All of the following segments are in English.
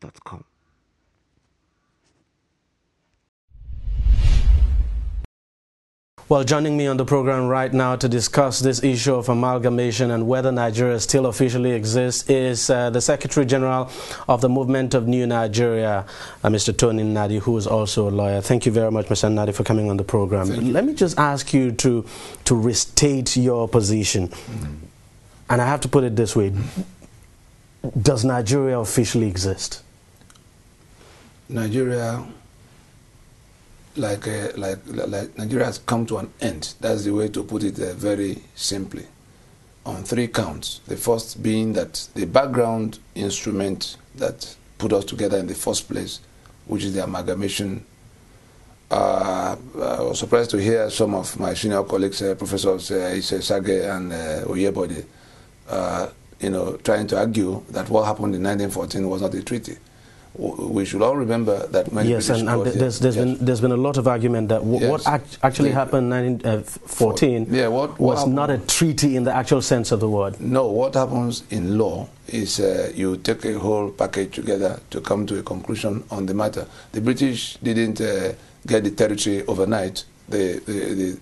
gmail.com. Well, joining me on the program right now to discuss this issue of amalgamation and whether Nigeria still officially exists is uh, the Secretary General of the Movement of New Nigeria, uh, Mr. Tony Nadi, who is also a lawyer. Thank you very much, Mr. Nadi, for coming on the program. Let me just ask you to, to restate your position. Mm -hmm. And I have to put it this way Does Nigeria officially exist? Nigeria, like, uh, like, like Nigeria has come to an end. That's the way to put it uh, very simply. On three counts. The first being that the background instrument that put us together in the first place, which is the amalgamation. Uh, uh I was surprised to hear some of my senior colleagues, uh, professors uh, Ise Sage and uh, Oyebode, uh, you know, trying to argue that what happened in 1914 was not a treaty. we should all remember that yes, British and, and there's, there's yes. been there's been a lot of argument that yes. what act actually the, happened in 1914 uh, yeah, what, what was happened? not a treaty in the actual sense of the word. No, what happens in law is uh, you take a whole package together to come to a conclusion on the matter. The British didn't uh, get the territory overnight. The the,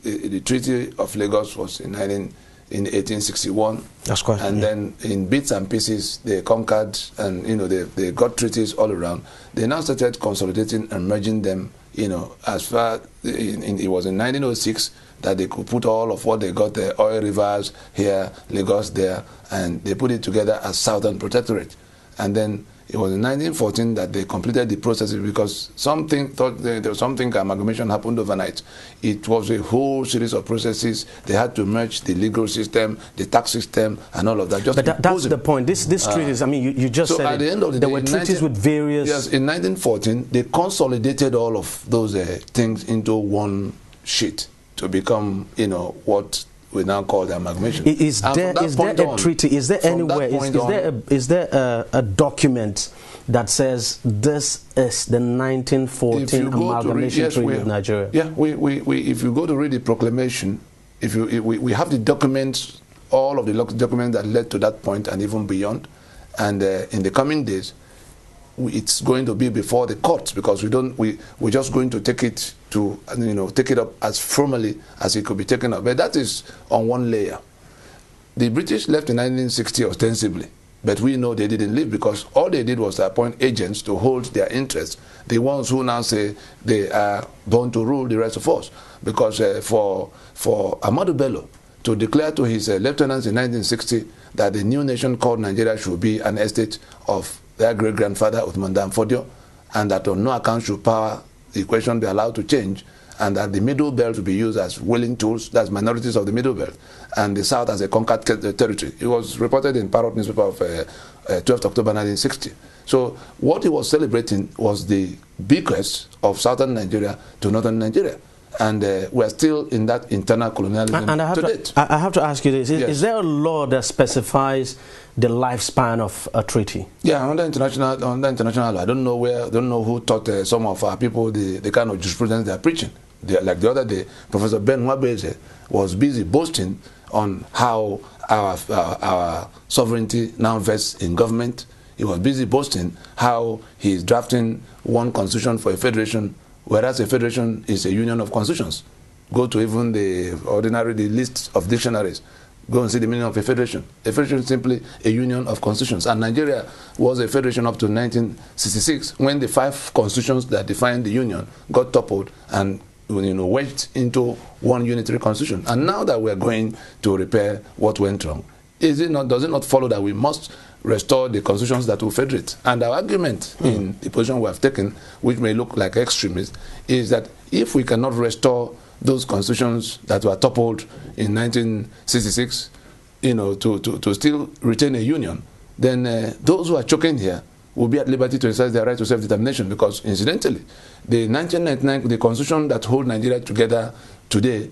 the the, the Treaty of Lagos was in 19. in 1861. That's quite. And yeah. then in bits and pieces, they conquered and you know they, they got treaties all around. They now started consolidating and merging them. You know, as far in, in, it was in 1906 that they could put all of what they got the oil rivers here, Lagos there, and they put it together as Southern Protectorate. And then It was in 1914 that they completed the processes because something thought there was something amalgamation happened overnight. It was a whole series of processes. They had to merge the legal system, the tax system, and all of that. Just but that, that's the point. This this treaties. Uh, I mean, you, you just so said at it. the end of the there day, were treaties 19, with various. Yes, in 1914 they consolidated all of those uh, things into one sheet to become, you know, what we now call the amalgamation. Is there, is there a on, treaty? Is there anywhere? Is, is, on, there a, is, there a, a, document that says this is the 1914 amalgamation read, yes, treaty of Nigeria? Yeah, we, we, we, if you go to read the proclamation, if you if we, we have the documents, all of the documents that led to that point and even beyond, and uh, in the coming days, it's going to be before the courts because we don't we we're just going to take it to you know take it up as formally as it could be taken up. But that is on one layer. The British left in 1960 ostensibly, but we know they didn't leave because all they did was appoint agents to hold their interests. The ones who now say they are born to rule the rest of us, because uh, for for Ahmadu Bello to declare to his uh, lieutenants in 1960 that the new nation called Nigeria should be an estate of their great grandfather Uthman Danfodio, and that on no account should power equation be allowed to change and that the middle belt be used as willing tools, that's minorities of the middle belt, and the south as a conquered uh, territory. It was reported in Parrot newspaper of uh, uh, 12th October 1960. So what he was celebrating was the bequest of southern Nigeria to northern Nigeria. and uh, we're still in that internal colonialism and, I, have to to, I have to, ask you this: is, yes. is, there a law that specifies the lifespan of a treaty? Yeah, under international, under international law, I don't know where, I don't know who taught uh, some of our people the, the kind of jurisprudence they are preaching. They, like the other day, Professor Ben Wabese was busy boasting on how our, our, our sovereignty now vests in government. He was busy boasting how he is drafting one constitution for a federation whereas a federation is a union of constitutions. Go to even the ordinary the list of dictionaries. Go and see the meaning of a federation. A federation is simply a union of constitutions. And Nigeria was a federation up to 1966 when the five constitutions that defined the union got toppled and you know, wedged into one unitary constitution. And now that are going to repair what went wrong, is it not, does it not follow that we must restore the constitutions that will federate. And our argument mm. in the position we have taken, which may look like extremist, is that if we cannot restore those constitutions that were toppled in 1966, you know, to, to, to still retain a union, then uh, those who are choking here will be at liberty to exercise their right to self-determination because, incidentally, the 1999, the constitution that holds Nigeria together today,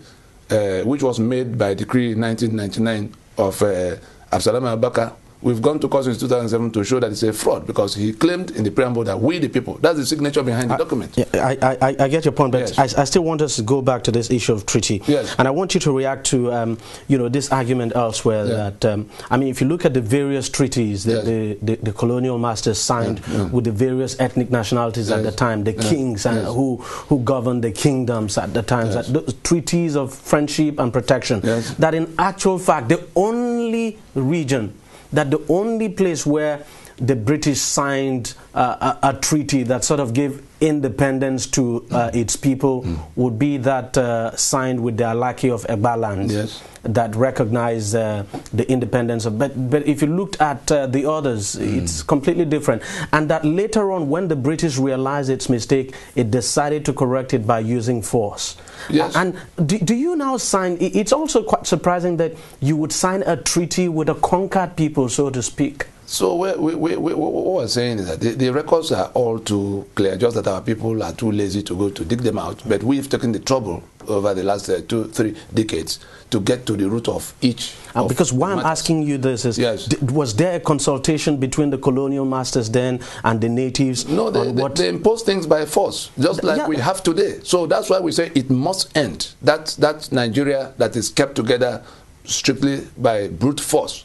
uh, which was made by decree 1999 of uh, Absalom Abaka, We've gone to court since 2007 to show that it's a fraud because he claimed in the preamble that we, the people, that's the signature behind the I, document. I, I, I, get your point, but yes. I, I, still want us to go back to this issue of treaty. Yes. And I want you to react to um, you know, this argument elsewhere yeah. that, um, I mean, if you look at the various treaties that yes. the, the, the, colonial masters signed yeah. with the various ethnic nationalities yes. at the time, the yeah. kings and who, who governed the kingdoms at the time, that treaties of friendship and protection, that in actual fact, the only region that the only place where the British signed uh, a, a, treaty that sort of gave independence to uh, its people mm. would be that uh, signed with the Alaki of Ebaland yes. that recognized uh, the independence of. But, but if you looked at uh, the others, mm. it's completely different. And that later on, when the British realized its mistake, it decided to correct it by using force. Yes. And do, do you now sign? It's also quite surprising that you would sign a treaty with a conquered people, so to speak. So we, we, we, we, what we're saying is that the, the, records are all too clear, just that our people are too lazy to go to dig them out. But we've taken the trouble over the last uh, two, three decades to get to the root of each. And of because why I'm asking you this is, yes. was there a consultation between the colonial masters then and the natives? No, they, they, they impose things by force, just like yeah. we have today. So that's why we say it must end. That, that Nigeria that is kept together strictly by brute force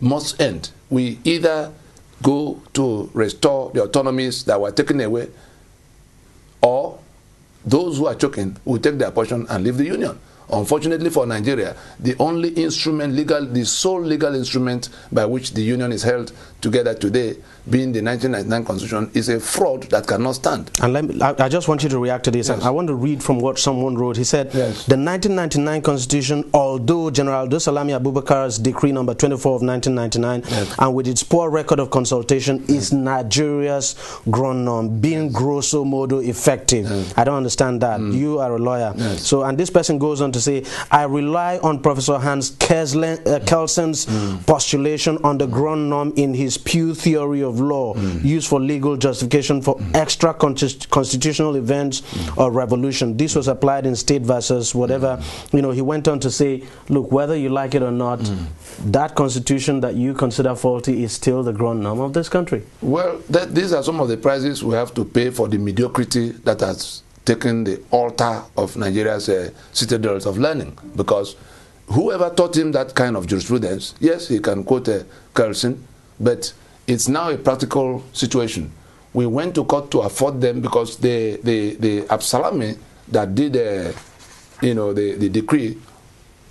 must end. We either go to restore the autonomies that were taken away, or those who are choking will take their portion and leave the union. Unfortunately for Nigeria, the only instrument legal, the sole legal instrument by which the union is held together today being the 1999 constitution is a fraud that cannot stand. And let me, I, I, just want you to react to this. Yes. I want to read from what someone wrote. He said, yes. the 1999 constitution, although General Dosalami Abubakar's decree number 24 of 1999, yes. and with its poor record of consultation, is Nigeria's gronom, being grosso modo effective. I don't understand that. Mm. You are a lawyer. So, and this person goes on to say, I rely on Professor Hans Kelsen's uh, mm. postulation on the gronom in his Pew theory of of law mm. used for legal justification for mm. extra constitutional events or revolution. This was applied in state versus whatever. You know, he went on to say, look, whether you like it or not, that constitution that you consider faulty is still the ground norm of this country. Well, th these are some of the prices we have to pay for the mediocrity that has taken the altar of Nigeria's uh, citadels of learning because whoever taught him that kind of jurisprudence, yes, he can quote uh, Carlson, but it's now a practical situation. We went to court to afford them because the the the Absalami that did the you know the, the decree,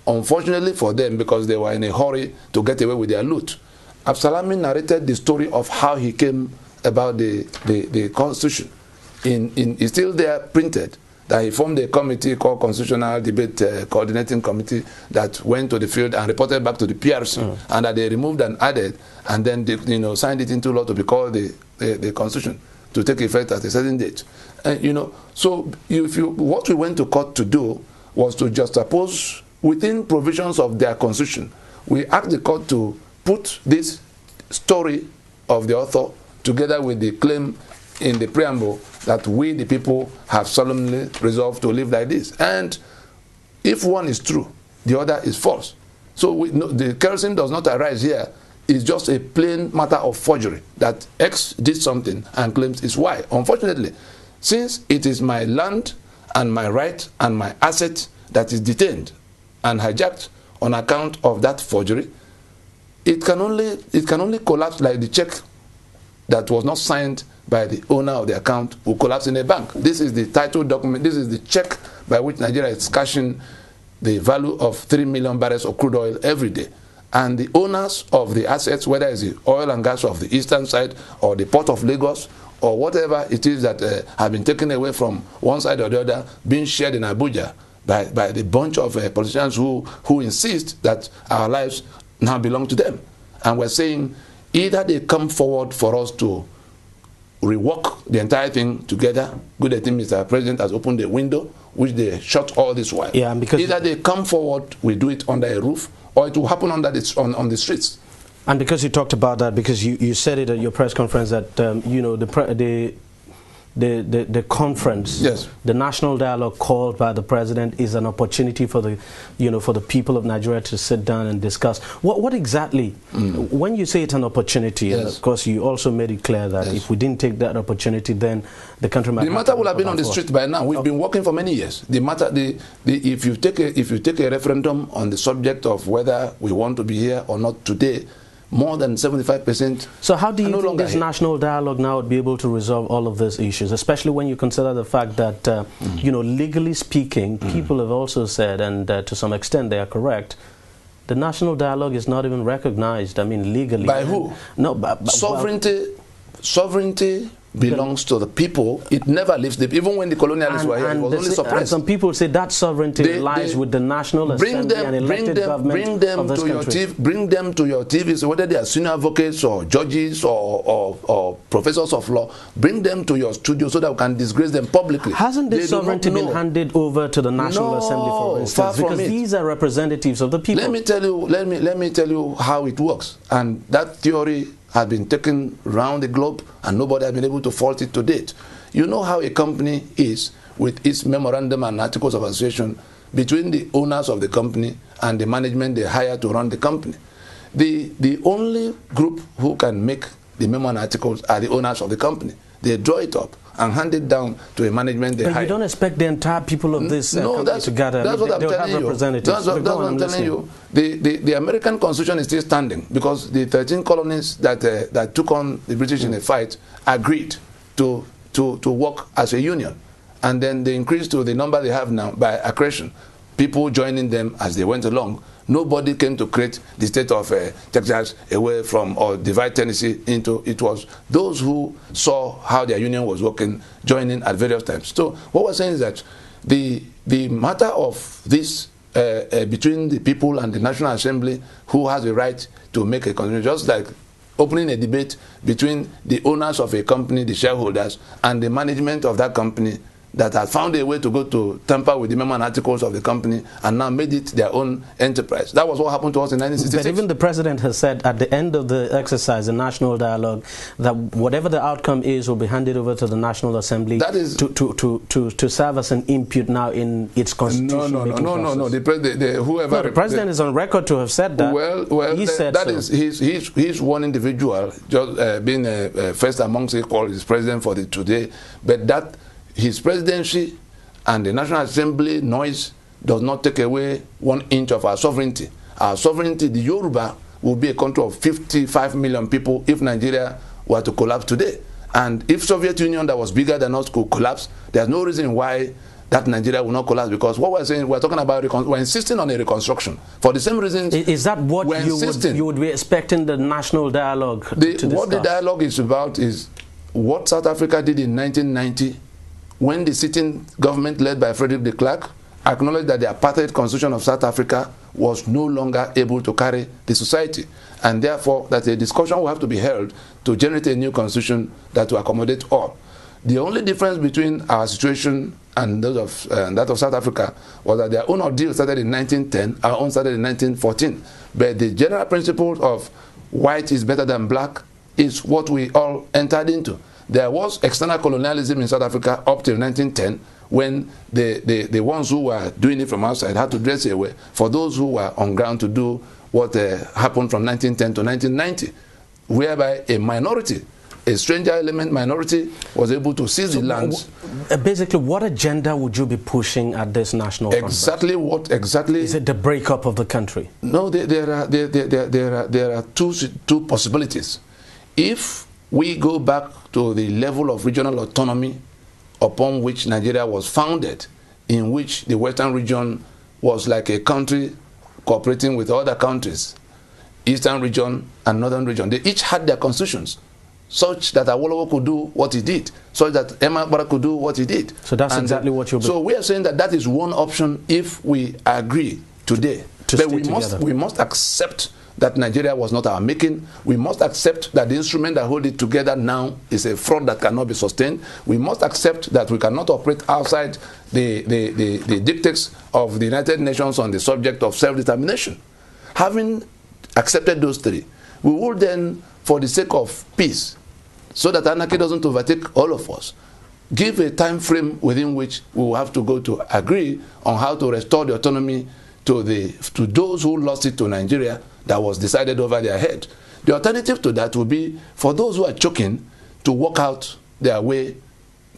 unfortunately for them because they were in a hurry to get away with their loot. Absalami narrated the story of how he came about the the, the constitution. In, in, it's still there printed that he formed a committee called Constitutional Debate uh, Coordinating Committee that went to the field and reported back to the PRC, mm. and that they removed and added, and then they, you know signed it into law to be called the, the, the Constitution to take effect at a certain date. And uh, you know, so if you what we went to court to do was to just suppose within provisions of their constitution. We asked the court to put this story of the author together with the claim in the preamble that we, the people, have solemnly resolved to live like this. And if one is true, the other is false. So we, no, the kerosene does not arise here. is just a plain matter of forgery that X did something and claims is Y. Unfortunately, since it is my land and my right and my asset that is detained and hijacked on account of that forgery, it can only, it can only collapse like the check that was not signed by the owner of the account will collapse in a bank. This is the title document. This is the check by which Nigeria is cashing the value of 3 million barrels of crude oil every day. And the owners of the assets, whether it's the oil and gas of the eastern side or the port of Lagos or whatever it is that uh, have been taken away from one side or the other, being shared in Abuja by, by the bunch of uh, politicians who, who insist that our lives now belong to them. And we're saying either they come forward for us to rework the entire thing together. Good, I Mr. President has opened the window, which they shut all this while. Yeah, because either they come forward, we do it under a roof, or it will happen under the, on, on the streets. And because you talked about that, because you, you said it at your press conference that um, you know the the the, the, the, conference, yes. the national dialogue called by the president is an opportunity for the, you know, for the people of Nigeria to sit down and discuss. What, what exactly, mm. when you say it's an opportunity, yes. of course you also made it clear that yes. if we didn't take that opportunity, then the country might The matter would have been on the street by now. We've okay. Oh. been working for many years. The matter, the, the, if, you take a, if you take a referendum on the subject of whether we want to be here or not today, more than 75%. So how do you no think this national dialogue now would be able to resolve all of these issues, especially when you consider the fact that, uh, mm. you know, legally speaking, mm. people have also said, and uh, to some extent they are correct, the national dialogue is not even recognized, I mean, legally. By who? No, by, by, Sovereignty, well, sovereignty belongs to the people. It never leaves them. Even when the colonialists and, were here, it was only suppressed. some people say that sovereignty they, lies they with the National bring Assembly them, and elected them, government bring them of this to country. Your TV, bring them to your TV, so whether they are senior advocates or judges or, or, or, professors of law, bring them to your studio so that we can disgrace them publicly. Hasn't this they sovereignty been handed over to the National no, Assembly, for instance? because it. these are representatives of the people. Let me tell you. Let me let me tell you how it works. And that theory has been taken round the globe and nobody has been able to fault it to date. You know how a company is with its memorandum and articles of association between the owners of the company and the management they hire to run the company. The, the only group who can make the memo and articles are the owners of the company. they draw it up and hand it down to a management they but hire. you don't expect the entire people of this uh, company no, that's, to gather. That's what I'm telling you. That's what, that's what I'm telling you. The, the, the, American Constitution is still standing because the 13 colonies that, uh, that took on the British in a mm. fight agreed to, to, to work as a union. And then they increased to the number they have now by accretion, people joining them as they went along. Nobody came to create the state of uh, Texas away from or divide Tennessee into it was those who saw how their union was working joining at various times. So what we're saying is that the the matter of this uh, uh, between the people and the National Assembly who has the right to make a constitution, just like opening a debate between the owners of a company, the shareholders, and the management of that company that had found a way to go to tamper with the and articles of the company and now made it their own enterprise. That was what happened to us in 1966. But even the president has said at the end of the exercise, the national dialogue, that whatever the outcome is will be handed over to the National Assembly that is to, to, to, to, to serve as an input now in its constitution. No, no, no, no, no, no. The, pre- the, the, whoever, no, the president the, is on record to have said that. Well, well he the, said that so. is, he's, he's, he's one individual, just uh, being uh, uh, first amongst equals, is president for the today. But that his presidency and the National Assembly noise does not take away one inch of our sovereignty. Our sovereignty, the Yoruba, will be a country of 55 million people if Nigeria were to collapse today. And if Soviet Union that was bigger than us could collapse, there's no reason why that Nigeria will not collapse because what we're saying, we're talking about, we're insisting on a reconstruction for the same reasons. Is that what you would, you would, be expecting the national dialogue the, What the dialogue is about is what South Africa did in 1990 when the sitting government led by Frederick de Klerk acknowledged that the apartheid constitution of South Africa was no longer able to carry the society and therefore that a discussion will have to be held to generate a new constitution that will accommodate all. The only difference between our situation and, of, uh, that of South Africa was that their own ordeal started in 1910, our own started in 1914. But the general principle of white is better than black is what we all entered into. There was external colonialism in South Africa up till 1910 when the, the, the ones who were doing it from outside had to dress well for those who were on ground to do what uh, happened from 1910 to 1990, whereby a minority a stranger element minority was able to seize so the lands. Uh, basically, what agenda would you be pushing at this national Exactly conference? what exactly? Is it the breakup of the country? No, there, there are, there, there, there, are, there are two, two possibilities. If we go back to the level of regional autonomy upon which Nigeria was founded, in which the Western region was like a country cooperating with other countries, Eastern region and Northern region. They each had their constitutions, such that Awolowo could do what he did, such that Emma Bara could do what he did. So that's and uh, exactly what you're. So we are saying that that is one option if we agree today. To but we together. must we must accept that Nigeria was not our making. We must accept that the instrument that hold it together now is a front that cannot be sustained. We must accept that we cannot operate outside the, the, the, the dictates of the United Nations on the subject of self-determination. Having accepted those three, we would then, for the sake of peace, so that anarchy doesn't overtake all of us, give a time frame within which we will have to go to agree on how to restore the autonomy to, the, to those who lost it to Nigeria that was decided over their head. The alternative to that would be for those who are choking to walk out their way,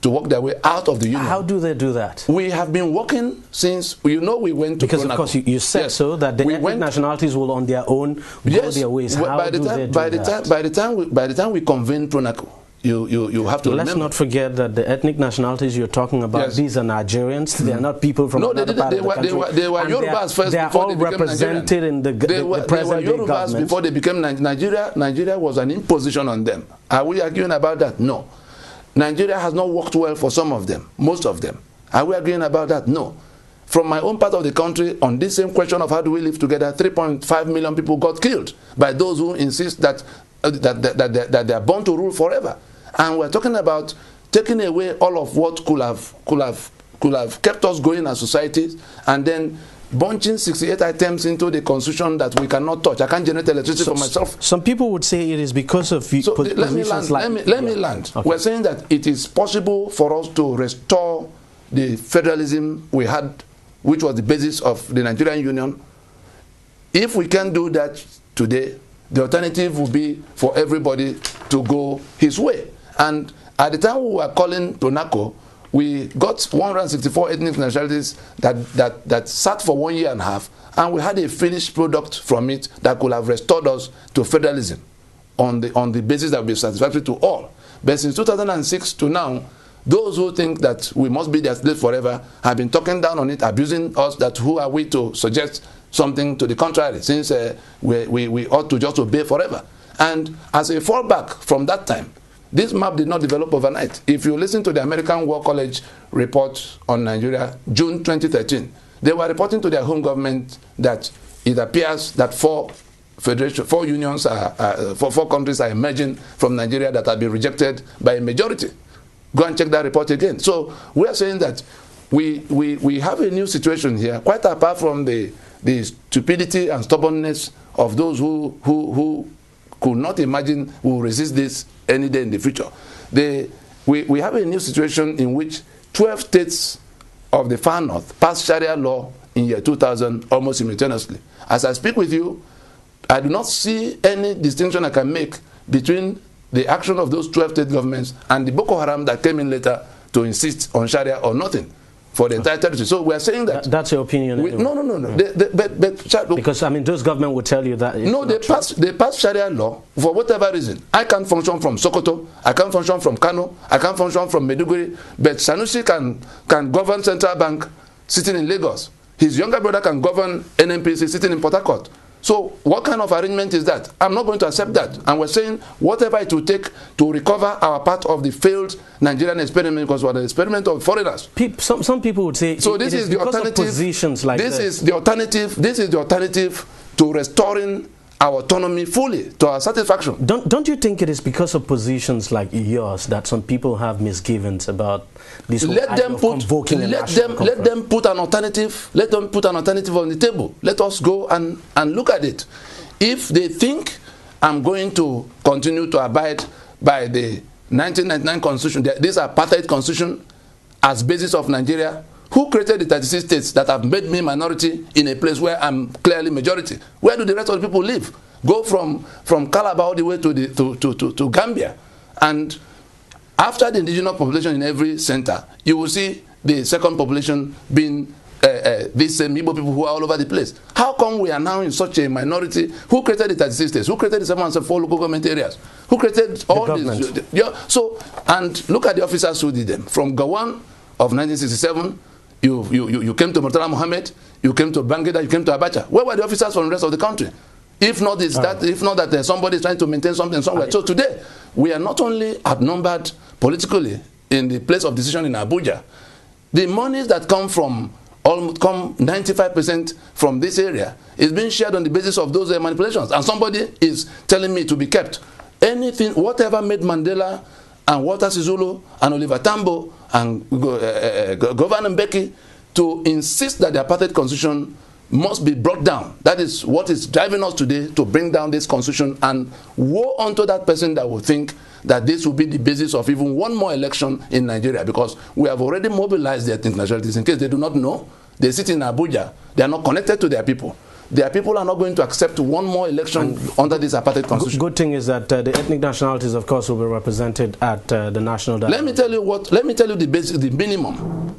to walk their way out of the union. How do they do that? We have been working since, you know, we went to Because, Pronaco. of course, you, you said yes. so that the we went, nationalities will on their own go yes, their ways. How by the time, by the Time, by, the time we, by the time we convened Pronaco, you, you, you have to Let's remember. not forget that the ethnic nationalities you're talking about, yes. these are Nigerians. They are not people from no, another they, part they, of the were, country. They were, they were Yorubas first they are all they represented Nigerian. in the, the, they were, the present they were Yorubas government. before they became Nigeria. Nigeria was an imposition on them. Are we arguing about that? No. Nigeria has not worked well for some of them, most of them. Are we agreeing about that? No. From my own part of the country, on this same question of how do we live together, 3.5 million people got killed by those who insist that, uh, that, that, that, that they are born to rule forever. And we're talking about taking away all of what could have, could have, could have kept us going as societies and then bunching 68 items into the constitution that we cannot touch. I can't generate electricity so, for myself. Some people would say it is because of so let me land. Like, let me, let me land. We We're saying that it is possible for us to restore the federalism we had, which was the basis of the Nigerian Union. If we can do that today, the alternative would be for everybody to go his way. And at the time we were calling Pronaco, we got 164 ethnic nationalities that, that, that sat for one year and a half, and we had a finished product from it that could have restored us to federalism on the, on the basis that would be satisfactory to all. But since 2006 to now, those who think that we must be their slave forever have been talking down on it, abusing us that who are we to suggest something to the contrary, since uh, we, we, we ought to just obey forever. And as a fallback from that time, This map did not develop overnight. If you listen to the American War College report on Nigeria, June 2013, they were reporting to their home government that it appears that four federation, four unions, are, are uh, four, four countries are emerging from Nigeria that have been rejected by a majority. Go and check that report again. So we are saying that we, we, we have a new situation here, quite apart from the, the stupidity and stubbornness of those who, who, who could not imagine will resist this any day in the future. we, we have a new situation in which 12 states of the far north passed Sharia law in year 2000 almost simultaneously. As I speak with you, I do not see any distinction I can make between the action of those 12 state governments and the Boko Haram that came in later to insist on Sharia or nothing. for the entire territory. So we are saying that. that's your opinion. We, no, no, no, no. Mm. They, they, but, but, look, because I mean, those government will tell you that. No, they pass they pass Sharia law for whatever reason. I can't function from Sokoto. I can't function from Kano. I can't function from Meduguri. But Sanusi can can govern central bank sitting in Lagos. His younger brother can govern NNPC sitting in Port Harcourt. So what kind of arrangement is that? I'm not going to accept that. And we're saying whatever it will take to recover our part of the failed Nigerian experiment because we're the experiment of foreigners. People, some, some people would say so. It, this it is, is the alternative. Positions like this, this is the alternative. This is the alternative to restoring our autonomy fully to our satisfaction. Don't, don't you think it is because of positions like yours that some people have misgivings about this let them put, let them, conference. let them put an alternative let them put an alternative on the table. Let us go and, and look at it. If they think I'm going to continue to abide by the 1999 constitution, this apartheid constitution as basis of Nigeria, Who created the 36 states that have made me minority in a place where I'm clearly majority? Where do the rest of the people live? Go from, from Calabar all the way to, the, to, to, to, to Gambia. And after the indigenous population in every center, you will see the second population being uh, uh, these same Igbo people who are all over the place. How come we are now in such a minority? Who created the 36 states? Who created the 774 local government areas? Who created all the these? The so, and look at the officers who did them. From Gawan of 1967 You, you, you, you came to Murtala Mohammed, you came to Bangida, you came to Abacha. Where were the officers from the rest of the country? If not, it's that, ah. if not that uh, somebody is trying to maintain something somewhere. So today, we are not only outnumbered politically in the place of decision in Abuja, the monies that come from almost come 95% from this area is being shared on the basis of those uh, manipulations. And somebody is telling me to be kept. Anything, whatever made Mandela and Walter Sisulu and Oliver Tambo and uh, Governor Mbeki to insist that the apartheid constitution must be brought down. That is what is driving us today to bring down this constitution and woe unto that person that will think that this will be the basis of even one more election in Nigeria because we have already mobilized their internationalities. In case they do not know, they sit in Abuja. They are not connected to their people. their people are not going to accept one more election and under this apartheid constitution. Good thing is that uh, the ethnic nationalities, of course, will be represented at uh, the national. Dialogue. Let me tell you what. Let me tell you the basic, the minimum,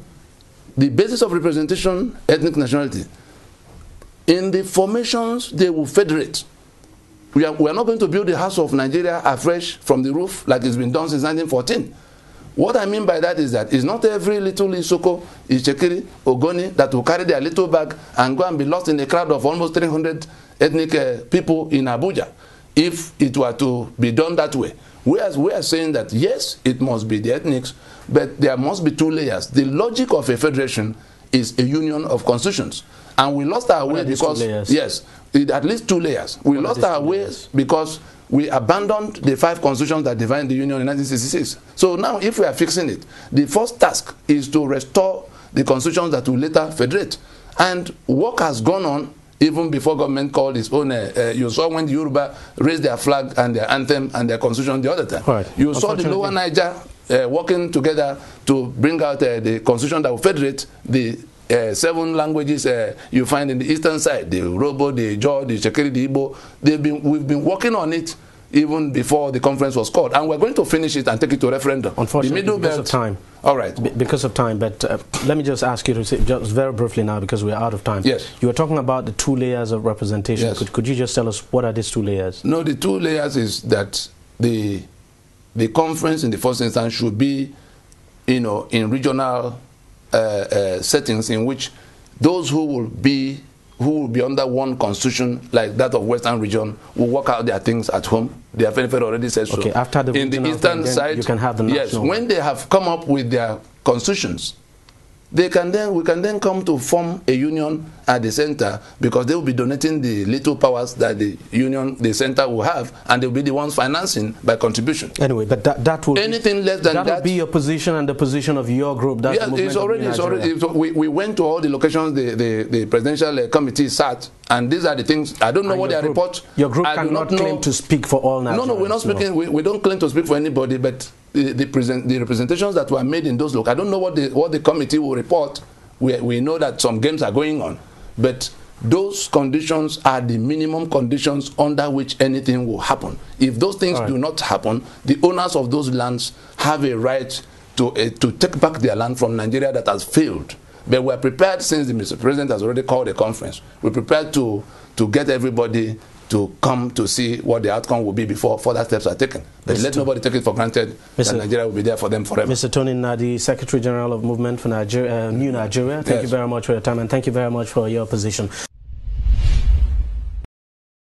the basis of representation, ethnic nationality. In the formations, they will federate. We are, we are not going to build the house of Nigeria afresh from the roof like it's been done since 1914. What I mean by that is that it's not every little Isoko, Ichekiri, Ogoni that will carry their little bag and go and be lost in a crowd of almost 300 ethnic uh, people in Abuja if it were to be done that way. are we are saying that yes, it must be the ethnics, but there must be two layers. The logic of a federation is a union of constitutions. And we lost our way because, yes, it, at least two layers. We lost our way because we abandoned the five constitutions that defined the union in 1966. So now, if we are fixing it, the first task is to restore the constitutions that will later federate. And work has gone on even before government called its own. Uh, uh, you saw when the Yoruba raised their flag and their anthem and their constitution the other time. Right. You saw the Lower Niger uh, working together to bring out uh, the constitution that will federate the uh, seven languages uh, you find in the eastern side the Robo, the Jaw, the Shekiri, the Igbo. They've been, we've been working on it even before the conference was called. And we're going to finish it and take it to referendum. Unfortunately, because belt, of time. All right. Be because of time, but uh, let me just ask you to say, just very briefly now because we're out of time. Yes. You were talking about the two layers of representation. Yes. Could, could you just tell us what are these two layers? No, the two layers is that the, the conference in the first instance should be, you know, in regional Uh, uh, settings in which those who will be who will be under one constitution like that of Western region will work out their things at home. The FNFL already says okay, so. After the in the eastern thing, side, you can have the national. Yes, when they have come up with their constitutions, they can then we can then come to form a union at the center because they will be donating the little powers that the union the center will have and will be the ones financing by contribution anyway but that, that will anything be, less than that, that will be your position and the position of your group that's yeah, it's already it's already it's, we, we went to all the locations the the, the presidential uh, committee sat and these are the things i don't know and what their group, report your group I cannot claim to speak for all Nigerians. no no we're not speaking no. We, we don't claim to speak for anybody but the, the, present, the representations that were made in those look, I don't know what the, what the committee will report. We, we know that some games are going on. But those conditions are the minimum conditions under which anything will happen. If those things do not happen, the owners of those lands have a right to, uh, to take back their land from Nigeria that has failed. But we're prepared, since the Mr. President has already called a conference, we're prepared to, to get everybody to come to see what the outcome will be before further steps are taken. But Mr. let nobody take it for granted Mr. that Nigeria will be there for them forever. Mr. Tony Nadi, Secretary General of Movement for Nigeria, uh, New Nigeria, thank yes. you very much for your time and thank you very much for your position.